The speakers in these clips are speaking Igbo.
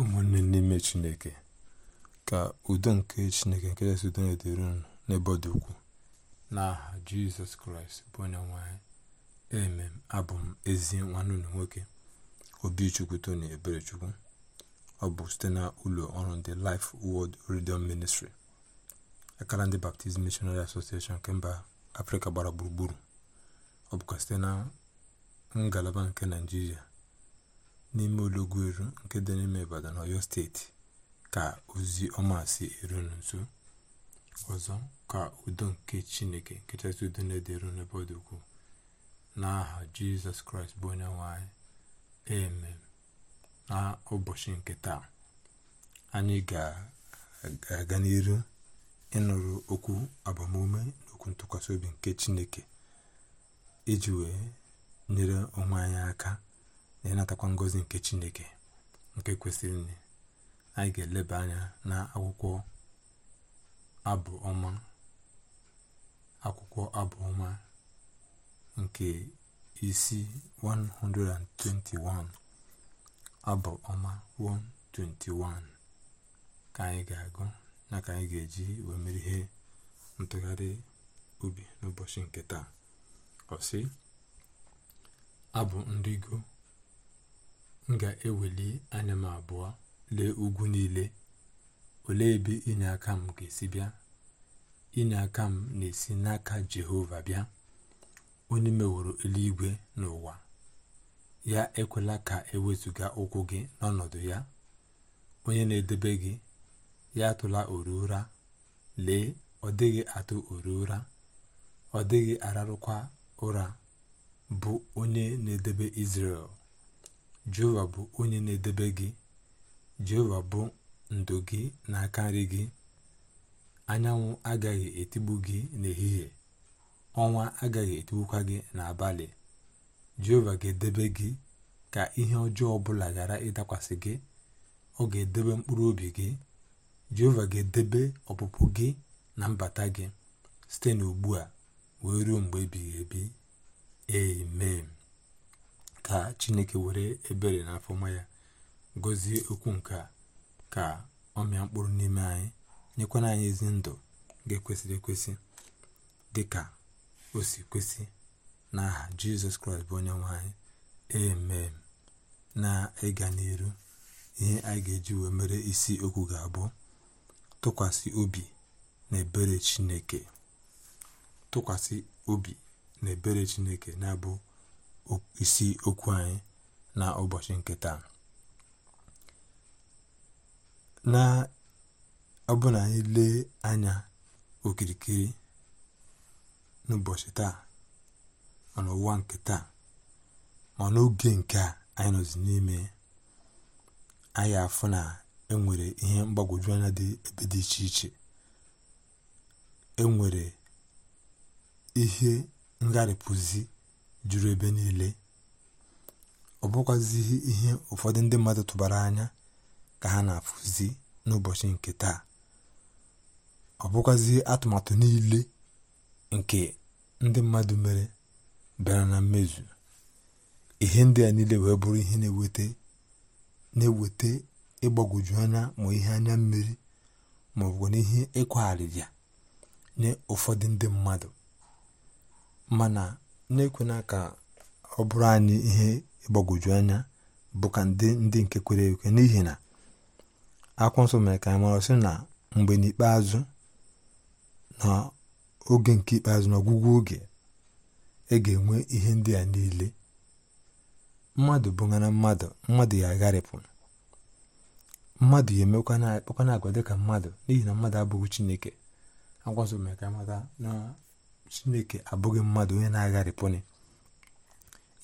ụmụnne n'ime chineke ka udo nke chineke nke jesụ udo na-edere unu n'ebe ọ dị ukwuu n'aha jizọs kraịst bụ onye nwanyị emem abụ m ezi nwanne unu nwoke obichukwu tony eberechukwu ọ bụ site na ụlọ ọrụ ndị life world radio ministri akara ndị baptizim missionary association nke mba afrịka gbara gburugburu ọ bụkwa site na ngalaba nke naijiria n'ime eru nke dị n'ime Ibadan steeti ka ozi ọma si eru nso ọzọ ka udo nke Chineke nke chasị udo na-edere n'ebe ọ dị ukwuu n'aha Jizọs Kraịst bụ onye nwanyị anyị na ụbọchị nke taa anyị ga-aga n'iru ịnụrụ okwu agbamume na okwu ntụkwasị obi nke Chineke iji wee nyere onwe anyị aka na na-atakwa ngozi nke chineke nke kwesịrị nne anyị ga-eleba anya na akwụkwọ abụ ọma akwụkwọ abụ ọma nke isi 121 abụ ọma 121 ka anyị ga-agụ na ka anyị ga-eji wee ihe ntụgharị ubi n'ụbọchị nke taa ọsị abụ ndị nrigo m ga-eweli anya m abụọ lee ugwu niile olee ebe aka m ga-esi bịa aka m na-esi n'aka jehova bịa onye meworo eluigwe n'ụwa ya ekwela ka ewezụga ụkwụ gị n'ọnọdụ ya onye na-edebe gị ya atụla oru ụra lee ọ dịghị atụ oru ụra ọ dịghị ararụkwa ụra bụ onye na-edebe isrel jehova bụ onye na-edebe gị jehova bụ ndo gị na-aka nri gị anyanwụ agaghị etigbu gị n'ehihie ọnwa agaghị etigbukwa gị n'abalị jehova ga-edebe gị ka ihe ọjọọ ọbụla ghara ịdakwasị gị ọ ga-edebe mkpụrụ obi gị jehova ga-edebe ọpụpụ gị na mbata gị site n'ugbu a wee ruo mgbe ebighị ebi amen ka chineke were ebere na afọma ya gọzie okwu nke a ka ọ mịa mkpụrụ n'ime anyị nyekwana anyị ezi ndụ ga-ekwesịrị ekwesị dị ka o si kwesị n'aha jizọs kraịst bụ onye nwe anyị emem na ịga n'iru ihe anyị ga-eji wee mere isi okwu ga-abụ tụkwasị obi na chineke tụkwasị obi na ebere chineke na-abụ isi okwu anyị na ụbọchị nketa taa na ọbụna anyị lee anya okirikiri n'ụbọchị taa ma n'ụwa nke taa ma n'oge nke a anyị nọzi n'ime anyị afụ na enwere ihe mgbagwoju anya dị ebe dị iche iche enwere ihe ngarịpụzi juru ebe niile ọ bụkwazighị ihe ụfọdụ ndị mmadụ tụbara anya ka ha na-afụzi n'ụbọchị nke taa ọ bụkwazighị atụmatụ niile nke ndị mmadụ mere bịara na mmezu ihe ndị a niile wee bụrụ ihe na-eweta na ịgbagwoju anya ma ihe anya mmiri ma ọ bụ n'ihe nye ụfọdụ ndị mmadụ mana na-ekwena ka ọ bụrụ anyị ihe ịgbagwoju anya bụ ka ndị nke kwere ekwe n'ihi na akwụkwọ nsọ mere ka anyị mara sị na mgbe n'ikpeazụ na oge nke ikpeazụ n'ọgwụgwụ oge ị e ga-enwe ihe ndị a niile mmadụ bụghara mmadụ mmadụ ya agharịpụ mmadụ ya emekwana akpakwana agwa dịka mmadụ n'ihi na mmadụ abụghị chineke akwa nso mere ka anyị mata na chineke abụghị mmadụ onye na-agharịpụnị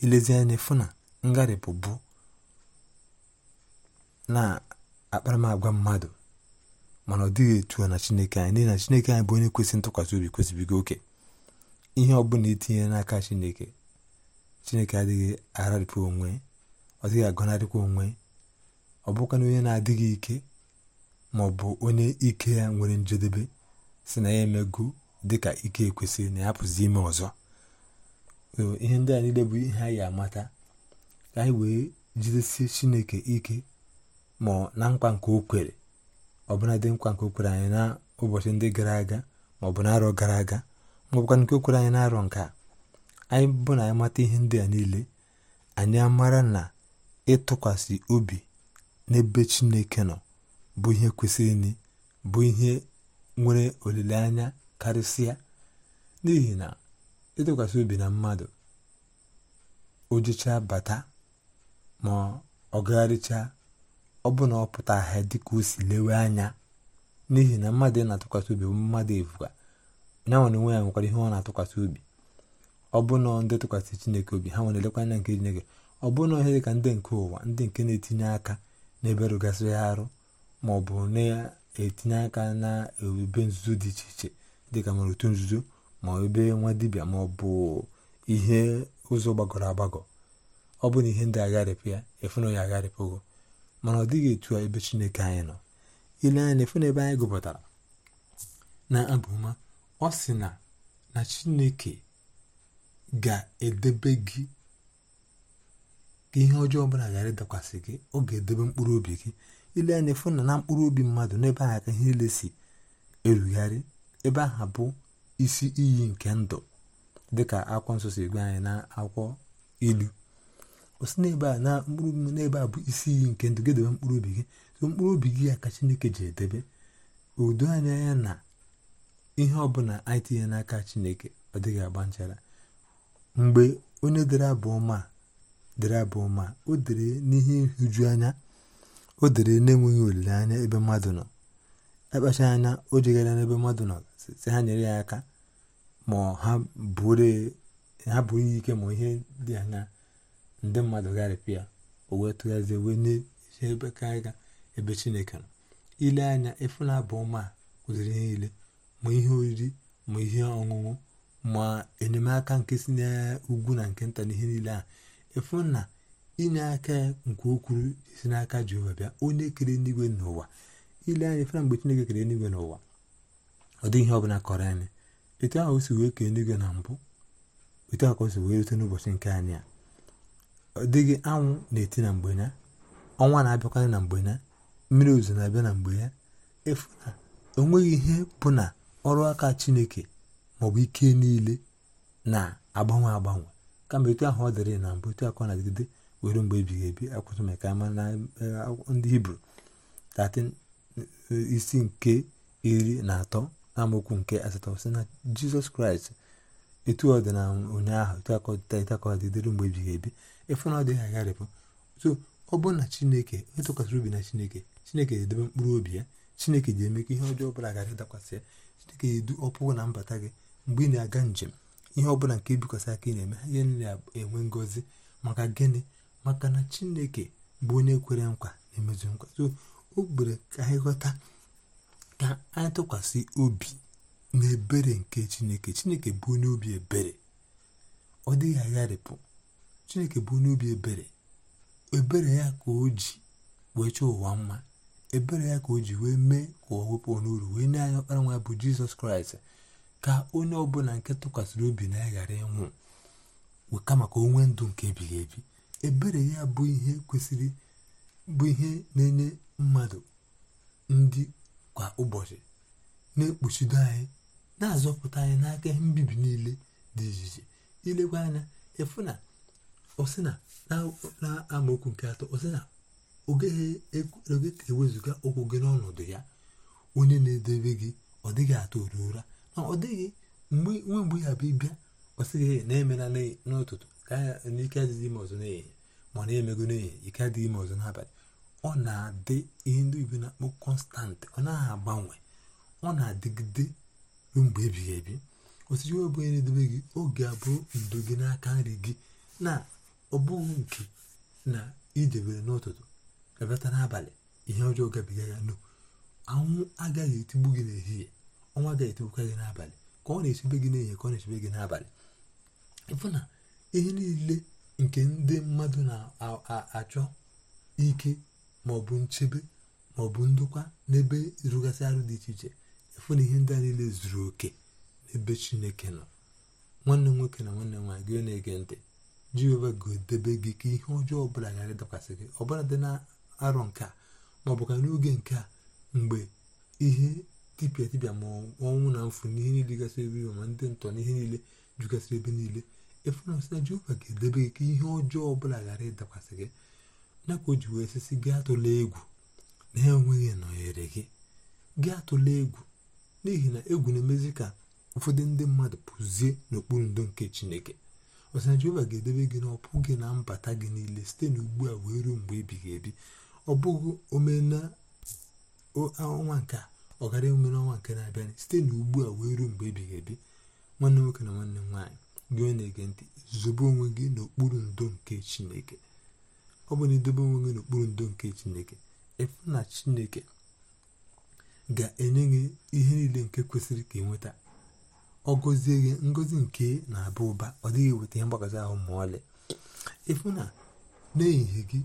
ilezi anya fụ na ngharịpụ bụ na akparamagwa mmadụ mana ọ dịghị etu na chineke anyị n'ihi na chineke anyị bụ onye kwesịrị ntụkwasị obi kwesịbigo oke ihe ọ bụla n'aka chineke chineke adịghị agharịpụ onwe ọ dịghị agọnarịkwa onwe ọ bụkwana onye na-adịghị ike ma ọ bụ onye ike ya nwere njedebe si na ya emego dịka ike ekwesịrị na ya pụzi ime ọzọ ihe ndị a niile bụ ihe anyị amata ka anyị wee jidesie chineke ike ma na nkwa nke o kwere ọbụla dị nkwa nke o kwere anyị na ụbọchị ndị gara aga ma ọ bụ arọ gara aga ma ọ bụkwa nke o kwere anyị n'arọ nke a anyị bụ na anyị mata ihe ndị a niile anyị amara na ịtụkwasị obi n'ebe chineke nọ bụ ihe kwesịrị bụ ihe nwere olileanya karịsịa n'ihi na ịtụkwasị obi na mmadụ o jechaa bata ma ọ gagharịchaa ọ bụ na ọ pụta ahịa dịka o si lewe anya n'ihi na mmadụ ị na-atụkwasị obi bụ mmadụ efuga ya nwere onwe ya nwekwara ihe ọ na-atụkwasị obi ọ bụ na ndị tụkwasị chineke obi ha nwere elekwa anya nke chineke ọ bụ na ihe dị ka ndị nke ụwa ndị nke na-etinye aka n'ebe rụgasịrị arụ ma ọ bụ na-etinye aka na ebube nzuzo dị iche iche dịka nwere otu nzuzo ma ebe nwa dibịa ma ọ bụ ihe ụzọ gbagọrọ agbagọ ọ bụ na ihe ndị agharịpụ ya efuna ya agharịpụgo mana ọ dịghị etu a ebe chineke anyị nọ ile anya efuna ebe anyị gụpụtara na abụma ọ sị na na chineke ga-edebe gị ka ihe ọjọọ ọbụla ghara ịdakwasị gị ọ ga-edebe mkpụrụ obi gị ile anya efuna na mkpụrụ obi mmadụ n'ebe ahụ ka ihe niile si erugharị ebe ahụ bụ isi iyi nke ndụ dịka akwụkwọ nsọ si gwa anyị na akwụkwọ ilu o si n'ebe a na mkpụrụ n'ebe a bụ isi iyi nke ndụ gedebe mkpụrụ obi gị so mkpụrụ obi gị ya ka chineke ji edebe udo anya ya na ihe ọbụla anyị tinye n'aka chineke ọ dịghị agba nchara mgbe onye dere abụ ọma dere abụ o dere n'ihe nhụju anya o dere na-enweghị olileanya ebe mmadụ nọ akpacha e anya o jegara n'ebe mmadụ nọ si ha nyere ya aka ma ha buru ihe ike ma ihe dị anya ndị mmadụ gharịpịa o wee tụghazie wee n'eji ebe ka aga ebe chineke nọ ile anya efula bụ ọma kwụziri ihe niile ma ihe oriri ma ihe ọṅụṅụ ma enyemaka nke si n'ugwu na nke nta na ihe niile a ịfụ na inye aka nke ukwuru si n'aka Jehova bịa onye kere eluigwe n'ụwa ile anya efula mgbe chineke kere eluigwe n'ụwa ọ dịghị ihe ọbụla kọrọ anyị etu ahụ si wee kee eluigwe na mbụ etu ahụ ka si wee rute n'ụbọchị nke anyị a ọ dịghị anwụ na-eti na mgbe ya ọnwa na-abịakwanye na mgbe ya mmiri ozuzo na-abịa na mgbe ya efu na o nweghị ihe bụ na ọrụ aka chineke maọbụ ike niile na-agbanwe agbanwe kama etu ahụ ọ dịrị na mbụ etu akọ na-adịgide were mgbe ebighị ebi akwụsị maka ama na e, ndị hibru 13 e, isi nke iri na atọ na amaokwu nke asatọ na jizọs kraịst etu ọ dị na ụnyaahụ etu akọdịta mgbe ebighị ebi ịfụ na ọ dịghị agharịpụ so ọ bụrụ na chineke onye tụkwasịrị obi na chineke chineke ga-edebe mkpụrụ obi ya chineke ji eme ka ihe ọjọọ ọbụla gara ịdakwasị ya chineke ga-edu ọpụpụ na mbata gị mgbe ị na-aga njem ihe ọbụla nke ibikwasị aka ị na-eme ihe niile enwe ngọzi maka gịnị maka na chineke bụ onye kwere nkwa na-emezu nkwa so o gbere ka anyị ghọta ka anyị tụkwasị obi n'ebere nke chineke chineke bụ onye obi ebere ọ dịghị agharịpụ chineke bụ onye obi ebere ebere ya ka o ji wee chọọ ụwa mma ebere ya ka o ji wee mee ka ọ wepụ n'uru wee nye anyị ọkpara nwa bụ jizọs kraịst ka onye ọbụla nke tụkwasịrị obi na ya ghara ịnwụ kama ka o nwee ndụ nke ebighị ebi ebere ya bụ ihe kwesịrị bụ ihe na-enye mmadụ ndị kwa ụbọchị na-ekpuchido anyị na-azọpụta anyị n'aka ihe mbibi niile dị iche iche ilekwa anya ịfụ na ọsị na amaokwu nke atọ ọsị na oge e ka ewezụga ụkwụ gị n'ọnọdụ ya onye na edebe gị ọ dịghị atọ oru ụra na ọ dịghị nwe mgbe ya bụ ịbịa ọsịghị na-emela n'ụtụtụ ka n'ike adịghị ime ọzọ n'ehihie ma na-emego n'ehihie ike adịghị ime ọzọ n'abalị ọ na-adị ihe ndị igbo na-akpọ kọnstant ọ naghị agbanwe ọ na-adịgide mgbe ebighị ebi osisi ọ onye na edebe gị oge abụọ ndo gị n'aka nri gị na ọ nke na idebere n'ụtụtụ ga-abịata n'abalị ihe ọjọọ gabiga ya no anwụ agaghị etigbu gị n'ehihie ọnwa agaghị etigbukwa gị n'abalị ka ọ na-echebe gị n'ehihie ka ọ na-echebe gị n'abalị ịfụ na ihe niile nke ndị mmadụ na-achọ ike ma ọ bụ nchebe ma ọ bụ ndokwa n'ebe rụgasị arụ dị iche iche ịfụ na ihe ndị a niile zuru oke n'ebe chineke nọ nwanne m nwoke na nwanne m nwaanyị gị na-ege ntị jehova ga-edebe gị ka ihe ọjọọ ọbụla ghara ịdakwasị gị ọbụla dị na arọ nke a ma ọ bụ ka n'oge nke a mgbe ihe tipịa tipịa ma ọnwụ na mfu n'ihe niile gasị ebe iwe ma ndị ntọ n'ihe niile jugasịrị ebe niile efu na sị na jehova ga-edebe gị ka ihe ọjọọ ọbụla ghara ịdakwasị gị nakwa ka o ji wee sisi gị atụla egwu na enweghị nọnyere gị gị atụla egwu n'ihi na egwu na-emezi ka ụfọdụ ndị mmadụ pụzie n'okpuru ndo nke chineke ọsịna jehova ga-edebe gị n'ọpụ gị na mbata gị niile site n'ugbu a wee ruo mgbe ebighị ebi ọ bụghị ọnwa nke ọ gara ọnwa nke na-abịa site n'ugbu a wee ruo mgbe ebighị ebi nwanne nwoke na nwanne m nwaanyị gị onye na-ege ntị zobe onwe gị n'okpuru ndo nke chineke ọ bụ na edobe onwe gị n'okpuru ndo nke chineke ịfụ na chineke ga-enye gị ihe niile nke kwesịrị ka ịnweta ọ gọzie gị ngozi nke na-aba ụba ọ dịghị eweta ihe mgbagazi ahụ ma ọlị ịfụ na n'ehihie gị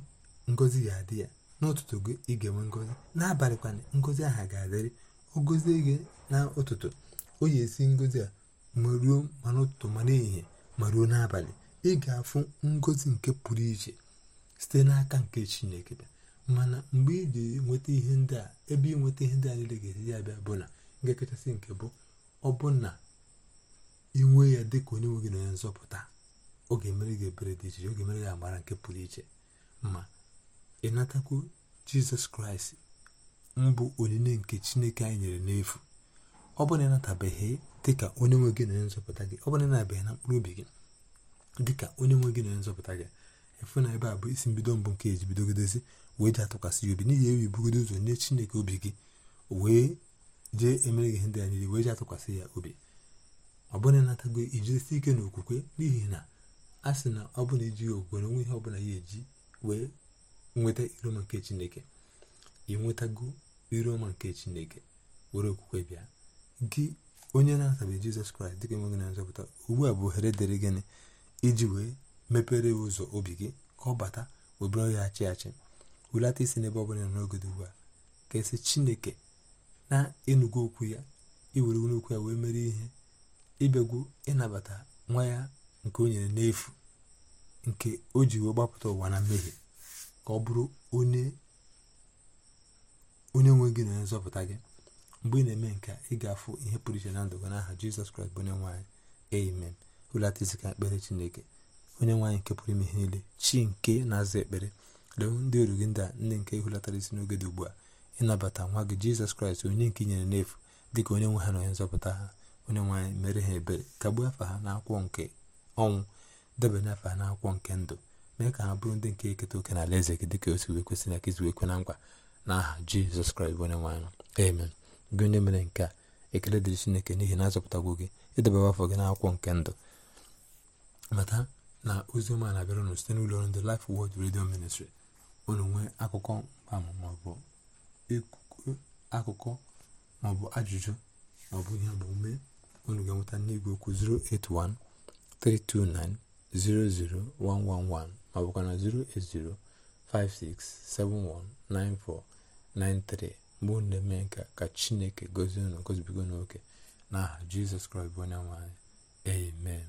ngozi ga-adị ya n'ụtụtụ gị ị ga-enwe ngozi n'abalị kwana ngozi aha ga-adịrị ọ gọzie gị na ụtụtụ o yi esi ngozi a ma ruo ma n'ụtụtụ ma n'ehihie ma ruo n'abalị ị ga-afụ ngozi nke pụrụ iche site n'aka nke chineke bịa mana mgbe ị ga ihe ndị a ebe nweta ihe ndị a niile ga-esi ya bịa bụ na nke kachasị nke bụ ọ bụ na inwe ya dị ka onye nwe gị na onye nzọpụta ọ ga-emere gị ebere dị iche ọ ga gị amara nke pụrụ iche ma natakwu jizọs kraịst mbụ onyinye nke chineke anyị nyere n'efu ọ bụ na dị ka onye nwe gị na onye nzọpụta gị ọ bụ na na mkpụrụ obi gị dị ka onye nwe gị na onye nzọpụta gị efu na ebe a bụ isi mbido mbụ nke eji bidogodozi wee ji atụkwasị ya obi n'ihi ewi bugodo ụzọ nye chineke obi gị wee jee emere gị ihe ndị a niile wee ji atụkwasị ya obi ọ bụrụ na ịnatago ijidesi ike na okwukwe n'ihi na a sị na ọ bụla ijighị okwukwe na onwe ihe ọ bụla ya eji wee nweta iroma nke chineke ị nwetago iroma nke chineke were okwukwe bịa gị onye na-atabeghị jizọs kraịst dịka enweghị na nzọpụta ugbu a bụ ohere dịrị gịnị iji wee mepere ụzọ obi gị ka ọ bata obere ya achị achị wulata isi n'ebe ọ bụla n'oge dị ugbu a ka esi chineke na enugwu okwu ya iwere n'okwu ya wee mere ihe ịbịagwu ịnabata nwa ya nke o nyere n'efu nke o ji wee gbapụta ụwa na mmehie ka ọ bụrụ onye nwe gị na onye nzọpụta gị mgbe ị na-eme nke ị ga-afụ ihe pụrụ iche na ndụ gị n'aha jizọs kraịst bụ onye nwe anyị amen hulata isi ka ekpere chineke onye nwaanyị nke pụrụ ime ihe niile chi nke na-aza ekpere lewe ndị oru gị ndị a ndị nke ịhụlatara isi n'oge dị ugbu a ịnabata nwa gị jizọs kraịst onye nke inyere n'efu dị ka onye nwe ha na onye nzọpụta ha onye nwaanyị mere ha ebere kagbuo afa ha n'akwụkwọ nke ọnwụ debanye afa ha n'akwụkwọ nke ndụ mee ka ha bụrụ ndị nke eketa oke na alaeze gị dịka osi wee kwesị na ka izi wee kwe na nkwa n'aha jizọs kraịst bụ onye nwaanyị amen gị onye mere nke a ekele dịrị chineke n'ihi na azọpụtagwo gị ịdebere afọ gị n'akwụkwọ nke ndụ mata na ozi ọma na-abịara unu site n'ụlọ ọrụ ndị Life Word Radio Ministry unu nwee akụkọ maọbụ akụkọ maọbụ ajụjụ maọbụ ihe omume unu ga-enweta n'igwe okwu 081 329 00111 maọbụkwa na 08056719493 mgbe unu na-eme nka ka Chineke gozie unu gozibigo n'oke n'aha Jizọs Kraịst bụ onye nwe amen